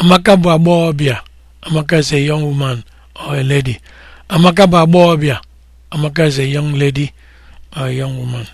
Amaka bụ agbọghọbịa. Amaka is a young woman or a lady. Amaka bụ agbọghọbịa. Amaka is a young lady or a young woman.